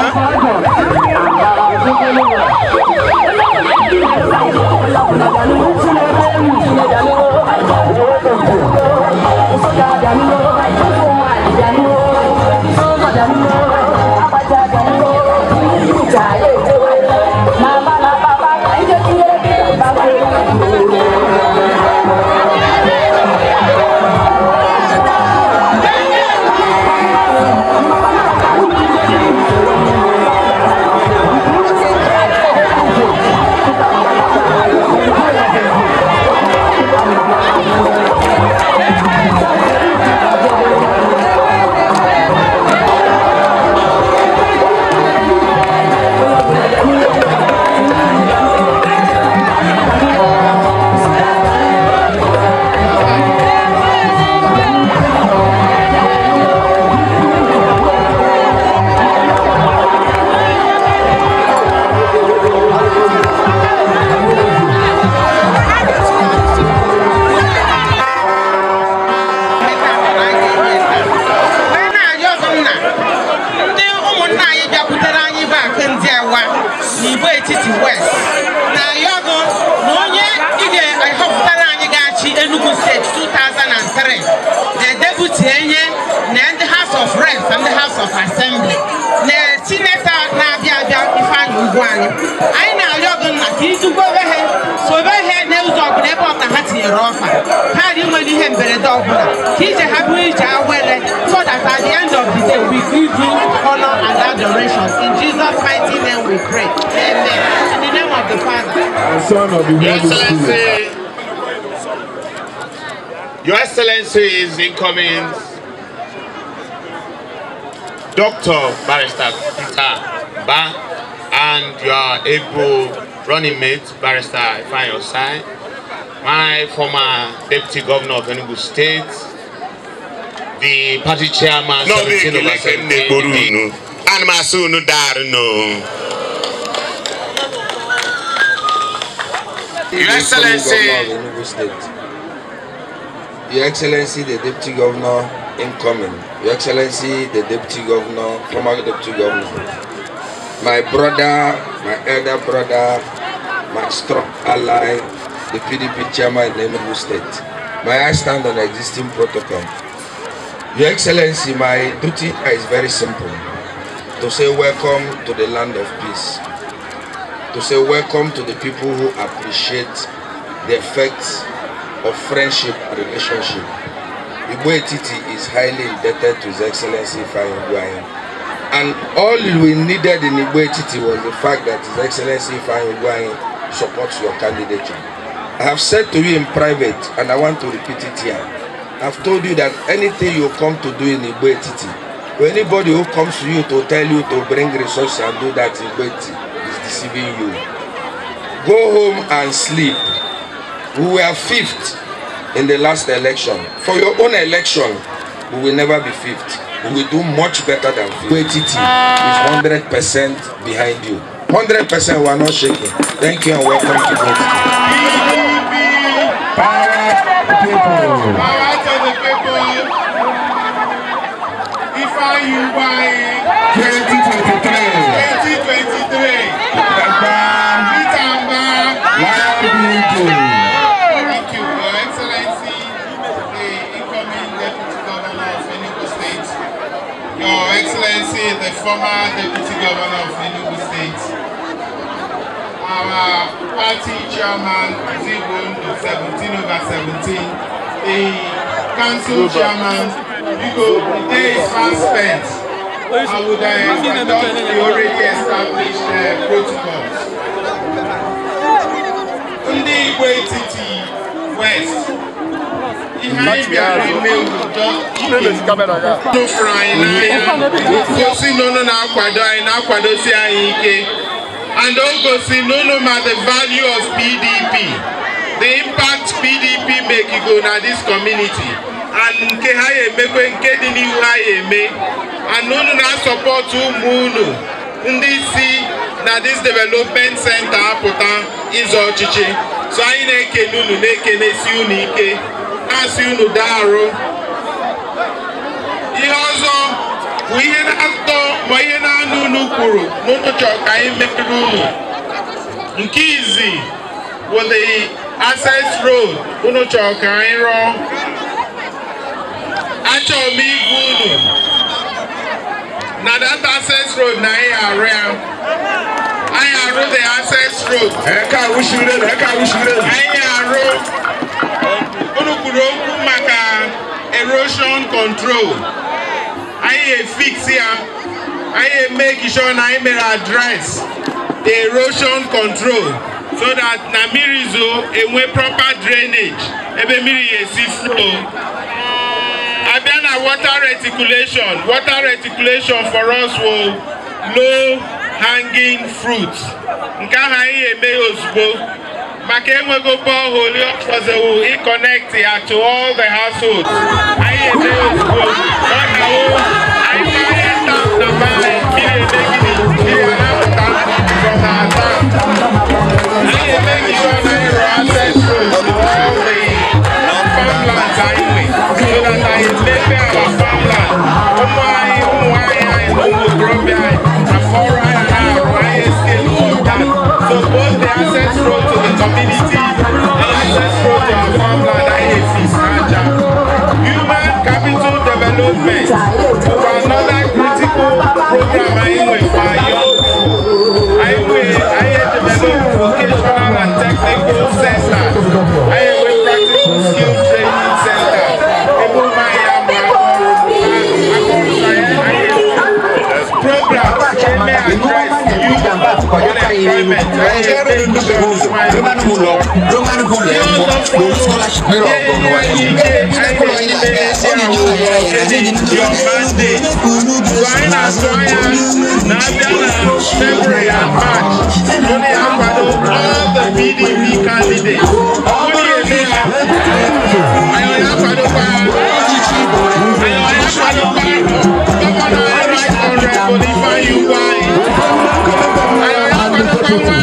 Huh? from the House of Assembly na chineta na-abịa abịa Ifeanyi Ugwuanyi anyị na-arịọ gị nna ka ịdugbo onwe ha sobe ha n'ụzọ ọbụla ebe ọbụla ha tinyere ọfa ha dị nwere ihe mberede ọbụla ka ije ha bụrụ ije awere so that at the end of the day we give you honor and adoration in Jesus mighty name we pray amen in the name of the Father and Son of the Holy Spirit Your Excellency is incoming Dr. Barrister Peter Ba and your able running mate, Barrister Ifeanyi Osai, my former Deputy Governor of Enugu State, the party chairman, no, 17 over 17, and my son, no, Your Excellency. Your Excellency, the Deputy Governor incoming. Your Excellency, the Deputy Governor, former Deputy Governor, my brother, my elder brother, my strong ally, the PDP Chairman in Enugu State. May I stand on existing protocol. Your Excellency, my duty is very simple. To say welcome to the land of peace. To say welcome to the people who appreciate the effects of friendship relationship Igbo Etiti is highly indebted to His Excellency Ifeanyi Ugwuanyi. And all we needed in Igbo Etiti was the fact that His Excellency Ifeanyi Ugwuanyi supports your candidature. I have said to you in private, and I want to repeat it here. I've told you that anything you come to do in Igbo Etiti, anybody who comes to you to tell you to bring resources and do that in Igbo is deceiving you. Go home and sleep. We were fifth in the last election. For your own election, we will never be fifth. We will do much better than fifth. QATT is 100% behind you. 100% we are not shaking. Thank you and welcome to QATT. people. to the people. Your Excellency, the former Deputy Governor of Enugu State, our party chairman, Zibun, 17 over 17, the council chairman, Hugo, the day is far spent. I would have adopt the already established uh, protocols. Ndị Igbo Etiti West n'ụfụrụ anyị n'ahịa gosi na unu na anyị ike and o gosi ma the value of PDP the impact PDP mekigo na this community and nke ha emekwe nke dị n'ihu ha eme and unu na-asọpọtụ ụmụ unu ndị si na this development center apụta ịzọ ọchịchị so anyị na-ekele unu na-ekenesi unu ike na-asị unu daarụ ihe ọzọ bụ ihe na-atọ ma ihe na-anụ unu kwuru n'ụtụtụ ka anyị merere unu nke izi bụ the access road unu chọrọ ka anyị rụọ achọrọ m igwe unu na that access road na anyị arụ ya anyị arụ the access road anyị arụ ọnụ kwuru okwu maka erosion control anyị efix ya anyị emeki sure na anyị mere address the erosion control so that na mmiri zoo enwe proper drainage ebe mmiri ya esi flow abịa na water reticulation water reticulation for us wo low hanging fruits nke ahụ anyị eme ozugbo maka enweghị ofe ọhụrụ ọkpọzewu ịkọnekti ya to all the households anyị ede ozugbo ọ na-awụ anyị karịa stamp na mmanụ ihe eme gịnị ihe na-apụta from our stamp anyị eme gịnị ọ na-eru access road to all the farmlands anyị nwe so that anyị mepe our farmland ụmụ anyị ụmụ nwaanyị anyị na ụmụ okorobịa anyị na ọrụ anyị na-arụ anyị escape all that so both is central to the community and is to our farmland IAC Aja. Human capital development is another critical program you to write every the scholarship all the PDP candidates. 拜拜。